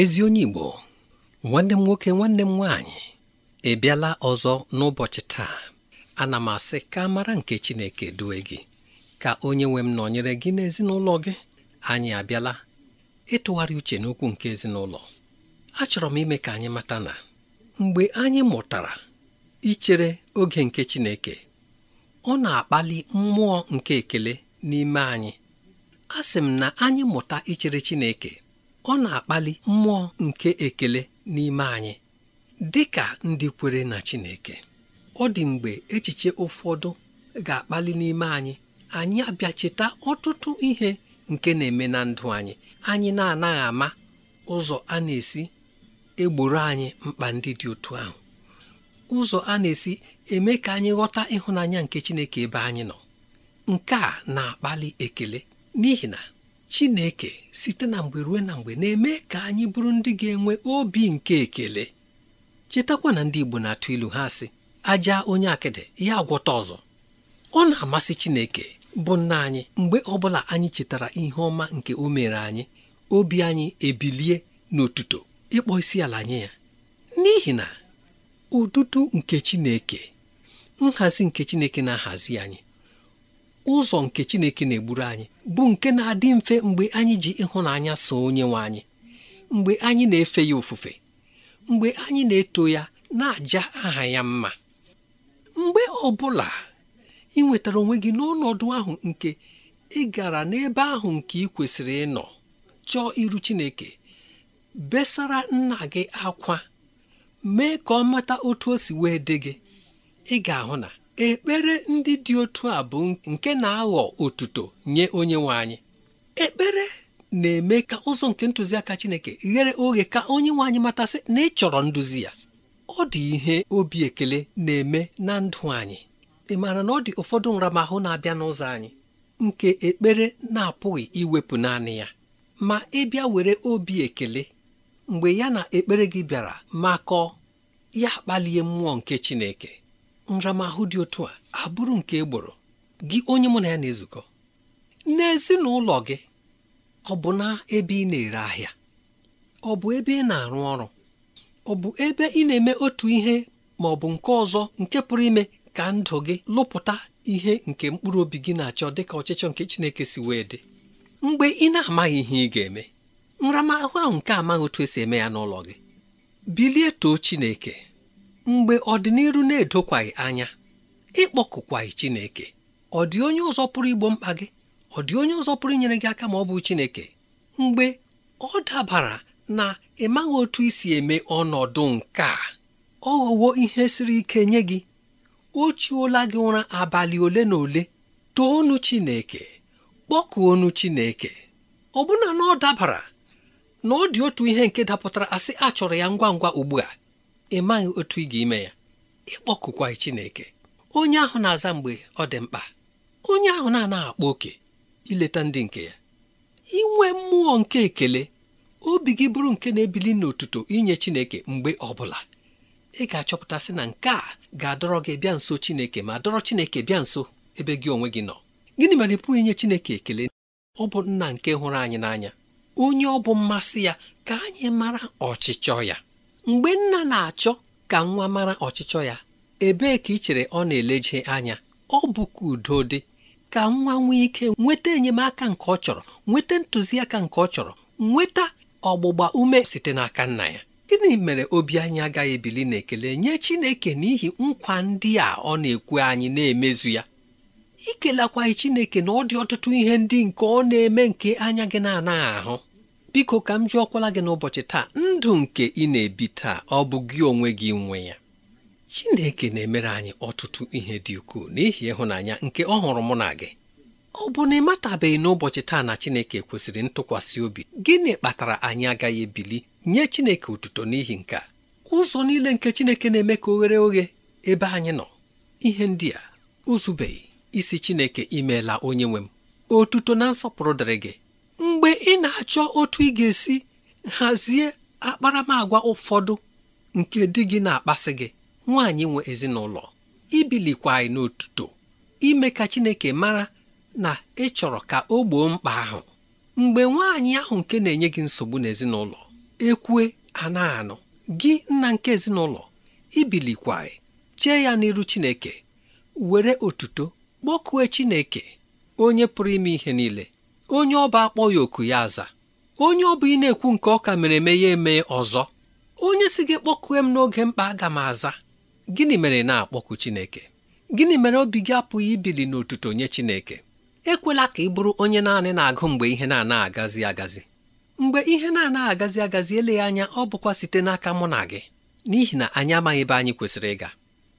ezi onye Igbo nwanne m nwoke nwanne m nwaanyị ebiala ọzọ n'ụbọchị taa ana m asị ka mara nke Chineke due gị ka onye nwe m nọnyere gị n'ezinụlọ gị anyị abịala ịtụgharị uche n'okwu nke ezinụlọ achọrọ m ime ka anyị mata na mgbe anyị mụtara ichere oge nke Chineke ọ na-akpali mmụọ nke ekele n'ime anyị a m na anyị mụta ichere Chineke ọ na-akpali mmụọ nke ekele n'ime anyị dị ka ndị kwere na Chineke ọ dị mgbe echiche ụfọdụ ga-akpali n'ime anyị anyị abịa ọtụtụ ihe nke na-eme na ndụ anyị anyị na-anaghị ama ụzọ a na-esi egboro anyị mkpa ndị dị otu ahụ ụzọ a na-esi eme ka anyị ghọta ịhụnanya nke Chineke ebe anyị nọ nke a na-akpali ekele n'ihi na Chineke site na mgbe ruo na mgbe na-eme ka anyị bụrụ ndị ga-enwe obi nke ekele chetakwa na ndị Igbo na-atụ ilu ha sị aja onye akịdị ya agwọta ọzọ ọ na-amasị Chineke bụ nna anyị mgbe ọbụla anyị chetara ihe ọma nke o mere anyị obi anyị ebilie n'otuto ịkpọ isi ala nye ya n'ihi na ụtụtụ nke Chineke nhazi nke Chineke na-ahazi anyị ụzọ nke Chineke na-egburu anyị bụ nke na-adị mfe mgbe anyị ji ịhụnanya so onye nwe anyị mgbe anyị na-efe ya ofufe mgbe anyị na-eto ya na-aja aha ya mma mgbe ọbụla, bụla ị nwetara onwe gị n'ọnọdụ ahụ nke ị gara n'ebe ahụ nke ị kwesịrị ịnọ chọọ iru Chineke besara nna gị akwa mee ka ọ mata otu o si wee dị gị ị ga-ahụ na ekpere ndị dị otu a bụ nke na-aghọ otuto nye onye nwe anyị ekpere na-eme ka ụzọ nke ntụziaka Chineke ghere oghe ka onye nwe anyị matasị na ịchọrọ nduzi ya ọ dị ihe obi ekele na-eme na ndụ anyị ị maara na ọ dị ụfọdụ nramahụ na-abịa n'ụzọ anyị nke ekpere na-apụghị iwepụ naanị ya ma ịbịa were obi ekele mgbe ya na ekpere gị bịara makọọ ya kpalie mmụọ nke Chineke nramahụ dị otu a abụrụ nke egboro gị onye mụ na ya na-ezukọ n'ezinụlọ gị ọ bụ na ebe ị na-ere ahịa ọ bụ ebe ị na-arụ ọrụ ọ bụ ebe ị na-eme otu ihe ma ọ bụ nke ọzọ nke pụrụ ime ka ndụ gị lụpụta ihe nke mkpụrụ obi gị na-achọ dịka ọchịchọ nke Chineke si wee dị mgbe ị na-amaghị ihe ị ga-eme nramahụ ahụ nke amaghị otu esi eme ya n'ụlọ gị bilie too Chineke mgbe ọdịnihu na-edokwaghị anya ịkpọkụkwaghị Chineke ọ dị onye ụzọ pụrụ igbo mkpa gị ọ dị onye ụzọ pụrụ inyere gị aka ma ọ bụ Chineke mgbe ọ dabara na ịmaghị otu isi eme ọnọdụ nke a ọ ghọwo ihe siri ike nye gị o chiola gị ụra abalị ole na ole toonu Chineke kpọkuonu Chineke ọbụna na ọ dabara na ọ dị otu ihe nke dapụtara asị a chọrọ ya ngwa ngwa ugbu a ị maghị otu ị ga-ime ya ịkpọkụkwaghị Chineke onye ahụ na-aza mgbe ọ dị mkpa onye ahụ na-anaghị akpa oke ileta ndị nke ya inwe mmụọ nke ekele obi gị bụrụ nke na-ebili n'otuto inye Chineke mgbe ọbụla ị ga-achọpụtasị na nke a ga-adọrọ gị bịa nso Chineke ma dọrọ Chineke bịa nso ebe gị onwe gị nọ gịnị mere ị pụghị inye Chineke ekele ọ bụ nna nke hụrụ anyị n'anya onye ọ bụ mmasị ya ka anyị mara ọchịchọ ya mgbe nna na-achọ ka nwa mara ọchịchọ ya ebee ka ị chere ọ na-eleje anya ọ bụkwa udo dị ka nwa nwee ike nweta enyemaka nke ọ chọrọ nweta ntụziaka nke ọ chọrọ nweta ọgbụgba ume site n'aka nna ya gịnị mere obi anyị agaghị ebili n'ekele nye Chineke n'ihi nkwa ndị a ọ na-ekwu anyị na-emezu ya ikelakwaghị Chineke na ọ dị ọtụtụ ihe ndị nke ọ na-eme nke anya gị na-anaghị ahụ biko ka m ọkwala gị n'ụbọchị taa ndụ nke ị na-ebi taa ọ bụ gị onwe gị nwe ya Chineke na-emere anyị ọtụtụ ihe dị ukwuu n'ihi ịhụnanya nke ọ hụrụ mụ na gị ọ bụ na ị matabeghị n'ụbọchị taa na Chineke kwesịrị ntụkwasị obi gịnị kpatara anyị agaghị ebili nye Chineke otuto n'ihi nke a? ụzọ niile nke Chineke na-eme ka oghere oghe ebe anyị nọ ihe ndị a uzubeghị isi Chineke imeela onye nwe m otuto na nsọpụrụ dịrị gị mgbe ị na-achọ otu ị ga-esi hazie akparamagwa ụfọdụ nke di gị na-akpasị gị nwaanyị nwe ezinụlọ ibilikwa anyị n'otuto ime ka Chineke mara na ị chọrọ ka o gboo mkpa ahụ mgbe nwaanyị ahụ nke na-enye gị nsogbu n'ezinụlọ ekwue anaghị anụ gị nna nke ezinụlọ ibilikwa chee ya n'iru Chineke were otuto kpọkue Chineke onye pụrụ ime ihe niile onye ọba akpọ ya oku ya aza onye ọ bụ ị na-ekwu nke ọka mere eme ya eme ọzọ onye si gị kpọkue m n'oge mkpa aga m aza gịnị mere na-akpọku Chineke gịnị mere obi gị apụghị ibili n'otuto nye Chineke ekwela ka ị bụrụ onye naanị na-agụ mgbe ihe na-anaghị agazi agazi mgbe ihe na-anaghị agazi agazi eleghị anya ọ bụkwa site n'aka mụ na gị n'ihi na anyị amaghị ebe anyị kwesịrị ịga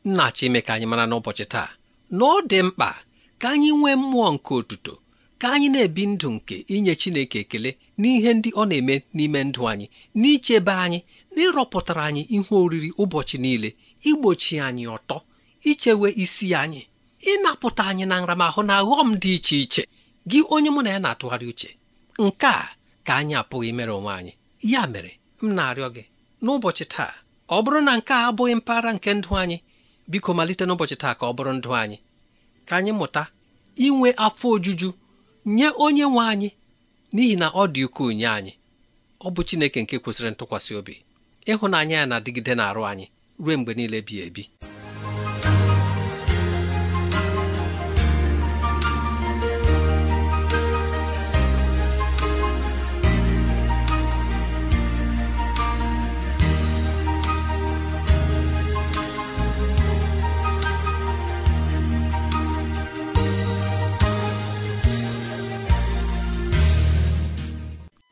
nna achọ ime ka anyị mara n'ụbọchị taa na ọ dị mkpa ka anyị nwee mmụọ nke otuto ka anyị na-ebi ndụ nke inye Chineke ekele n'ihe ndị ọ na-eme n'ime ndụ anyị n'ichebe anyị n'ịrọpụtara anyị ihe oriri ụbọchị niile igbochi anyị ọtọ ichewe isi anyị ịnapụta anyị na nramahụ na aghọm dị iche iche gị onye mụ na ya na-atụgharị uche nke a ka anyị apụghị imere onwe anyị ya mere m na-arịọ gị n'ụbọchị taa ọ bụrụ na nke a abụghị mpaghara nke ndụ anyị biko malite n'ụbọchị taa ka ọ bụrụ ndụ anyị ka anyị mụta inwe afọ ojuju nye onye nwe anyị n'ihi na ọ dị ukwuu nye anyị ọ bụ Chineke nke kwesịrị ntụkwasị obi ịhụnanya ya na-adịgide na-arụ anyị ruo mgbe niile bi ebi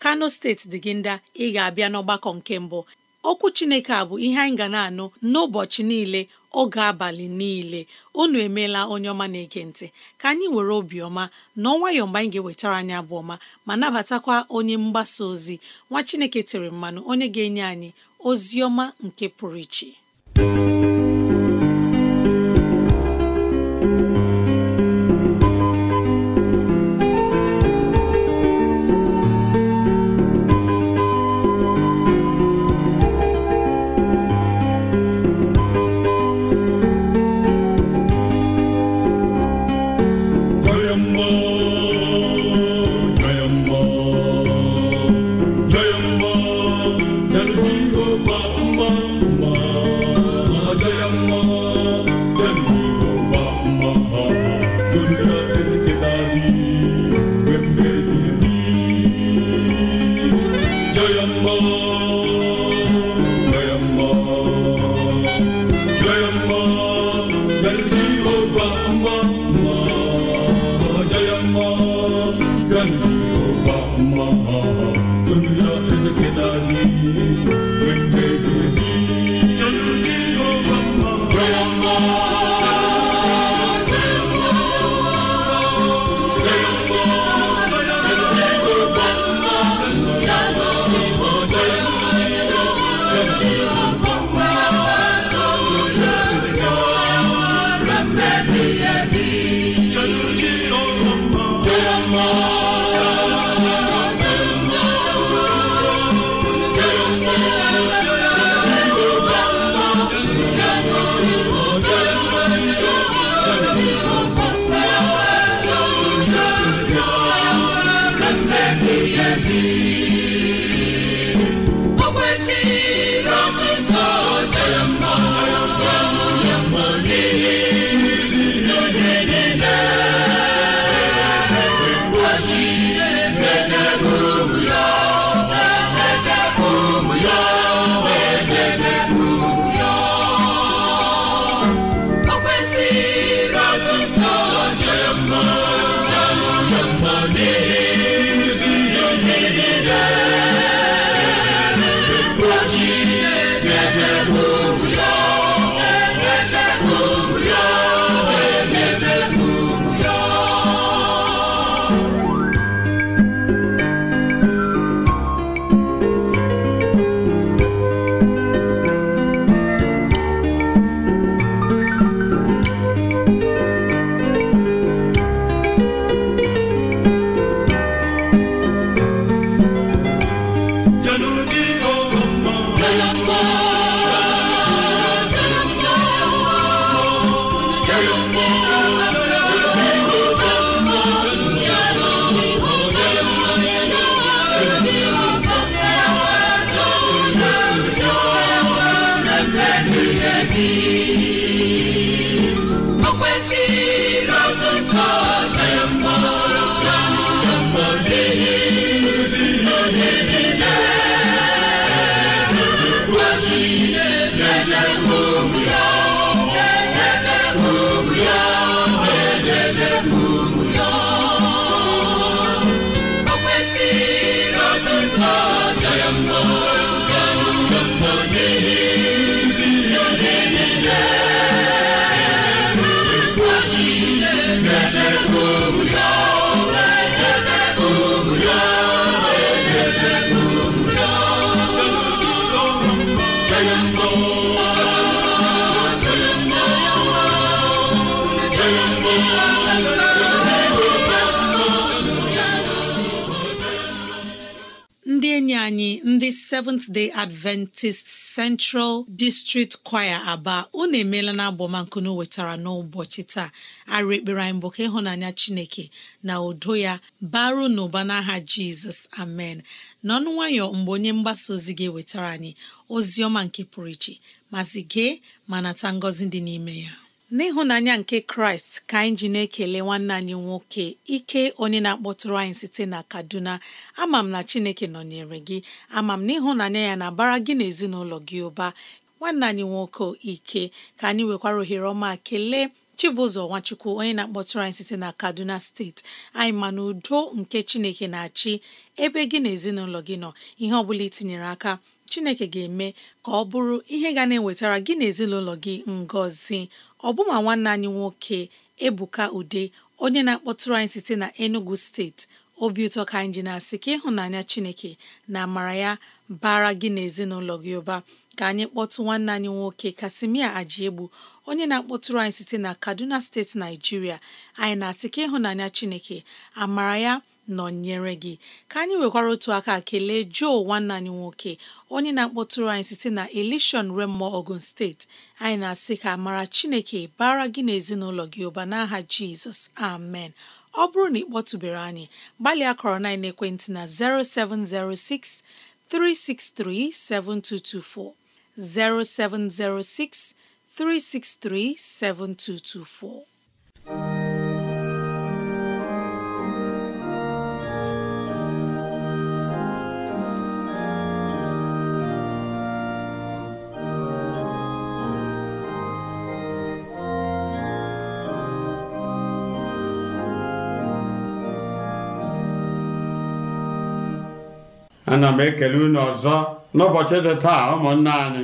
kano steeti dị gị ndị ị ga-abịa n'ọgbakọ nke mbụ okwu chineke a bụ ihe anyị ga na-anụ n'ụbọchị niile oge abalị niile unu emeela onye ọma na-ege ka anyị were obiọma na nwayọọ mgbe anyị ga-ewetara anyị abụọma ọma ma nabatakwa onye mgbasa ozi nwa chineke tere mmanụ onye ga-enye anyị ozi ọma nke pụrụ iche Miami. ndị Seventh Day Adventist Central District Choir Aba unu emeela na agbamankunu wetara n'ụbọchị taa arụ ekpere anyị bụ ka ịhụnanya Chineke na udo ya baru n'ụba n'aha Jizọs amen n'ọnụ nwayọ mgbe onye mgbasa ozi gị wetara anyị ozi ọma nke pụrụ iche mazị gee ma nata ngọzi dị n'ime ya n'ịhụnanya nke kraịst ka anyị ji na-ekele nwanne anyị nwoke ike onye na-akpọtụrụ anyị site na kaduna ama m na chineke nọnyere gị ama m n'ịhụnanya ya na-abara gị na ezinụlọ gị ụba nwanne anyị nwoke ike ka anyị nwekwara ohere ọma kelee chibụzọ nwachukwu onye na-akpọtụrụ anyị site na kaduna steeti anyị ma na udo nke chineke na-achị ebe gị na ezinụlọ gị nọ ihe ọ bụla itinyere aka chineke ga-eme ka ọ bụrụ ihe ga na-ewetara gị na ezinụlọ gị ngọzi ọbụma nwanne anyị nwoke ebuka ude onye na-akpọtụrụ anyị site na enugu steeti obi ụtọ ka anyị ji na-asị ka ịhụnanya chineke na amara ya bara gị na ezinụlọ gị ụba ka anyị kpọtụ nwanne anyị nwoke kasimia ajiegbu onye na-akpọtụrụ anyị site na kaduna steeti naijiria anyị na-asị ka ịhụnanya chineke amara ya nọnyere gị ka anyị nwekwara otu aka kelee Joe nwanne anyị nwoke onye na-akpọtụrụ anyị site na Elishon Remo Ogun steeti anyị na-asị ka mara Chineke bara gị na ezinụlọ gị ụba n'aha Jizọs amen ọ bụrụ na ị kpọtụbere anyị gbalịa kọrọ na ekwentị na 0706 363 7224 0706 363 7224 ana m ekele unu ọzọ n'ụbọchị dị taa ụmụnna anyị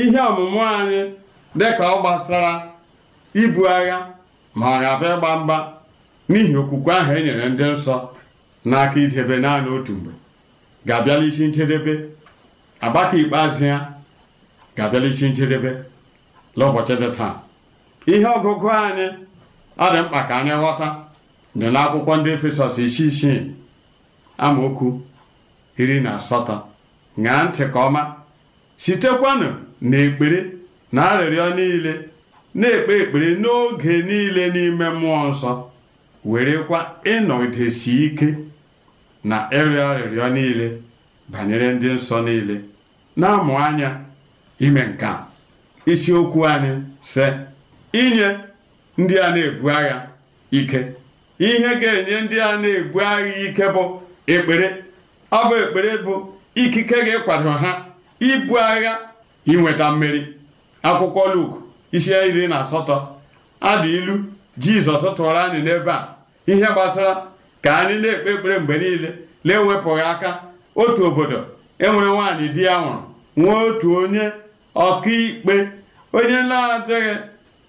ihe ọmụmụ anyị dịka ọ gbasara ibu agha ma ọ ga-abịa ịgba mgba n'ihi okwukwe ahụ e nyere ndị nsọ n'aka idebe naanị otu mgbe ga-abịala isi njedebe agbaka ikpeazụ ya ga-abịala isi njedebe n'ụbọchị dị taa ihe ọgụgụ anyị adị mkpa ka anyị ghọta dị n'akwụkwọ ndị Efesọs isi isii amaokwu iri na asatọ ṅaa ntị ka ọma sitekwanụ na ekpere na arịrịọ niile na-ekpe ekpere n'oge niile n'ime mmụọ nsọ werekwa ịnọdesi ike na ịrịọ arịrịọ niile banyere ndị nsọ niile na-amụ anya ime nke isiokwu anyị sị inye ndị a na-ebu agha ike ihe ga-enye ndị a na-ebu agha ike bụ ekpere ọ bụ ekpere bụ ikike gị kwado ha ibu agha inweta mmeri akwụkwọ Luk isi iri na asatọ adị ilu Jizọs tụrụ anyị n'ebe a ihe gbasara ka anyị na-ekpe ekpere mgbe niile na-ewepụghị aka otu obodo enwere nwaanyị di ya nwụrụ nwee otu onye ọkaikpe onye na-adịghị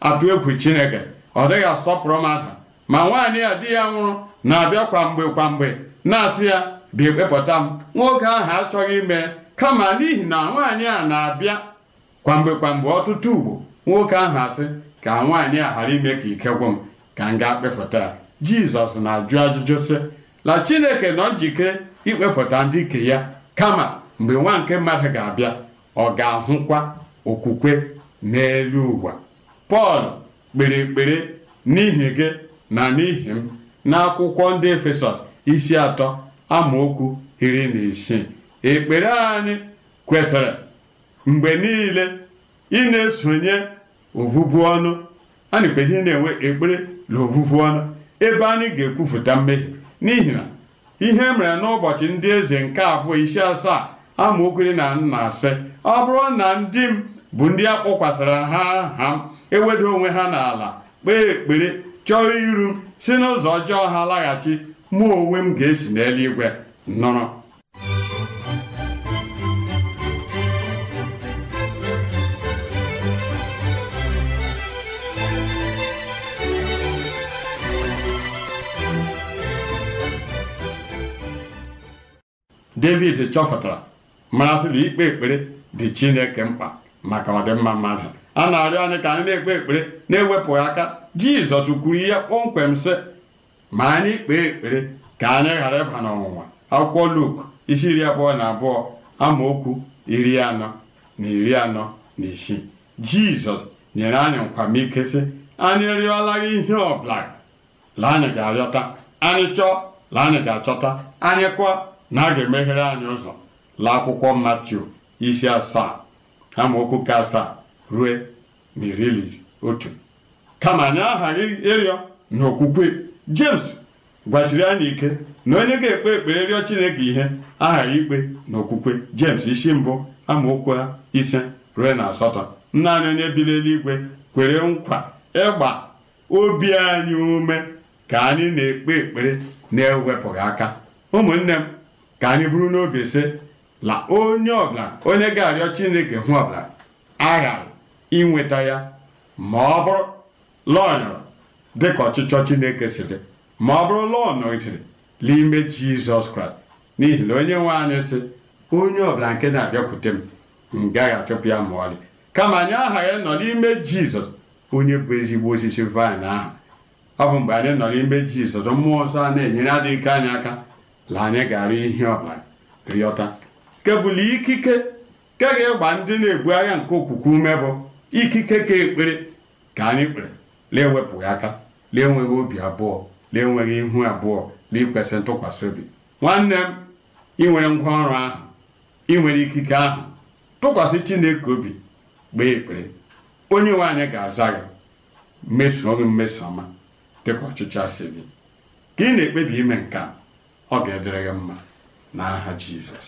atụ egwu Chineke ọ dịghị asọpụrụ mmadụ ma nwaanyị a di ya nwụrụ na-abịa kwa mgbe kwa mgbe na-asị ya bịa wepụta m nwoke ahụ achọghị ime kama n'ihi na nwaanyị a na-abịa kwamgbe kwamgbe ọtụtụ ugbo nwoke ahụ asị ka nwaanyị a ghara ime ka ike m ka m gaa kpefụta ya jizọs na-ajụ ajụjụ sị na chineke nọ njikere ikpefụta ndị ike ya kama mgbe nwa nke mmadụ ga-abịa ọ ga-ahụkwa okwukwe n'elu ụwa pọl kpere ekpere n'ihi gị na n'ihi m n'akwụkwọ ndị efesọs isi atọ amaokwu iri na isii ekpere anyị kwesịrị mgbe niile ị na-esonye ovuvu ọnụ anyị kwesịrị na-enwe ekpere na ovuvu ọnụ ebe anyị ga-ekwufụta mmehie n'ihi na ihe mere n'ụbọchị ndị eze nke abụọ isi asaa amaokwu iri na nna asị ọ bụrụ na ndị m bụ ndị a ha ha eweda onwe ha n'ala kpee ekpere chọọ iru si n'ụzọ ọjọọ ha laghachi mụ onwe m ga-esi n'eluigwe nọrọ david chọpụtara marasịla ikpe ekpere dị chineke mkpa maka ọdịmma mmadụ a na-arịọ anyị ka anyị na-ekpe ekpere na-ewepụghị aka jizọs kwuru ihe kpọmkwem sị ma anyị kpee ekpere ka anyị ghara ịba n'ọnwụnwa akwụkwọ Luk isi iri abụọ na abụọ amaokwu iri anọ na iri anọ na isii jizọs nyere anyị nkwamike sị anyị rịọla ihe ọbụla la anyị ga-arịọta anyị chọọ la anyị ga-achọta anyị kwa na a ga-emeghere anyị ụzọ la akwụkwọ matiu isi asaa amaokwu ka asaa rue na iri otu kama anyị aha ịrịọ na okwukwe. James gwasiri anyị ike na onye ga-ekpe ekpere rịọ Chineke ihe aha ikpe na okwukwe James isi mbụ amaokwu ise ruo na asatọ anyị onye bi kwere nkwa ịgba obi anyị ume ka anyị na-ekpe ekpere na-ewepụghị aka ụmụnne m ka anyị bụrụ n'obi ise la onye ọbụla onye ga-arịọ Chineke hụ ọbụla aghara inweta ya ma ọ bụrụ lọnyọrọ dịka ọchịchọ Chineke si dị ma ọ bụrụ lọọ nọgidere n'ime Jizọs Kraịst n'ihi na onye nwe anyị si onye ọbụla nke na-abịakwute m m gaghị achụpụ ya ma ọlị kama anyị ya nọ n'ime Jizọs onye bụ ezigbo osisi vaịn ahụ ọ bụ mgbe anyị nọ n'ime Jizọs mmụọ nsọ a na-enyere adịghị ike anyị aka la anyị ga-arụ ihe ọbụla rịọta kebụla ikike ke ga-egba ndị na-ebu agha nke okwukwe ume bụ ikike ka ekpere ka anyị kpere na-ewepụghị aka lee enweghị obi abụọ lee enweghị ihu abụọ lee ikwesị ntụkwasị obi nwanne m ị nwere ngwaọrụ ahụ ị nwere ikike ahụ tụkwasị chineke obi gbee ekpere onye nwe anyị ga-aza gị mesoo gị mmeso ọma ka ọchịchị asị gị ka ị na-ekpebi ime nke a ọ ga-edere gị mma n'aha Jizọs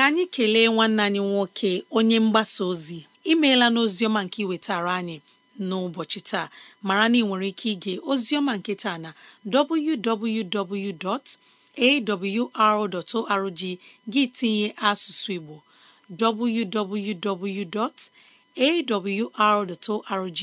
ka anyị kelee nwanne anyị nwoke onye mgbasa ozi imeela n'oziọma nke iwetara anyị n'ụbọchị taa mara na ị nwere ike ige ozioma nke taa na www.awr.org gị tinye asụsụ Igbo www.awr.org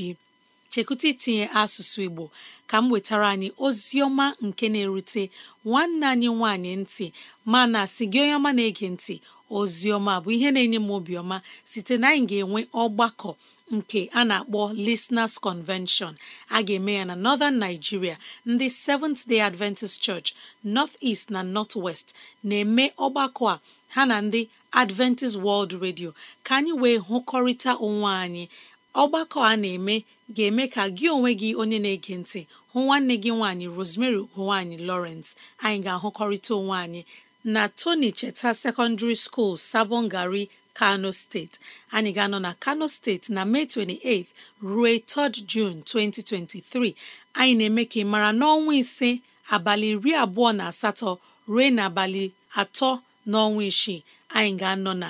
chekwụta itinye asụsụ Igbo ka m wetara anyị Ozioma nke na-erute nwanne anyị nwanyị ntị mana si gị onye ọma na-ege ntị Ozioma bụ ihe na-enye m obiọma site na anyị ga-enwe ọgbakọ nke a na-akpọ Listeners Convention a ga-eme ya na Northern Nigeria ndị Seventh Day Adventist Church North East na North West na-eme ọgbakọ a ha na ndị Adventist World Radio ka anyị wee hụkọrịta onwe anyị ọgbakọ a na-eme ga-eme ka gị onwe gị onye na-ege ntị hụ nwanne gị nwaanyị Rosemary ugonwaanyị Lawrence anyị ga-ahụkọrịta onwe anyị na Tony Cheta Secondary School Sabongari Kano steeti anyị ga-anọ na Kano steeti na Mee 28 ruo 3 June 2023 anyị na-eme ka ị mara n'ọnwa ise abalị iri abụọ na asatọ ruo n'abalị atọ n'ọnwa isii anyị ga-anọ na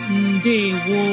ndewo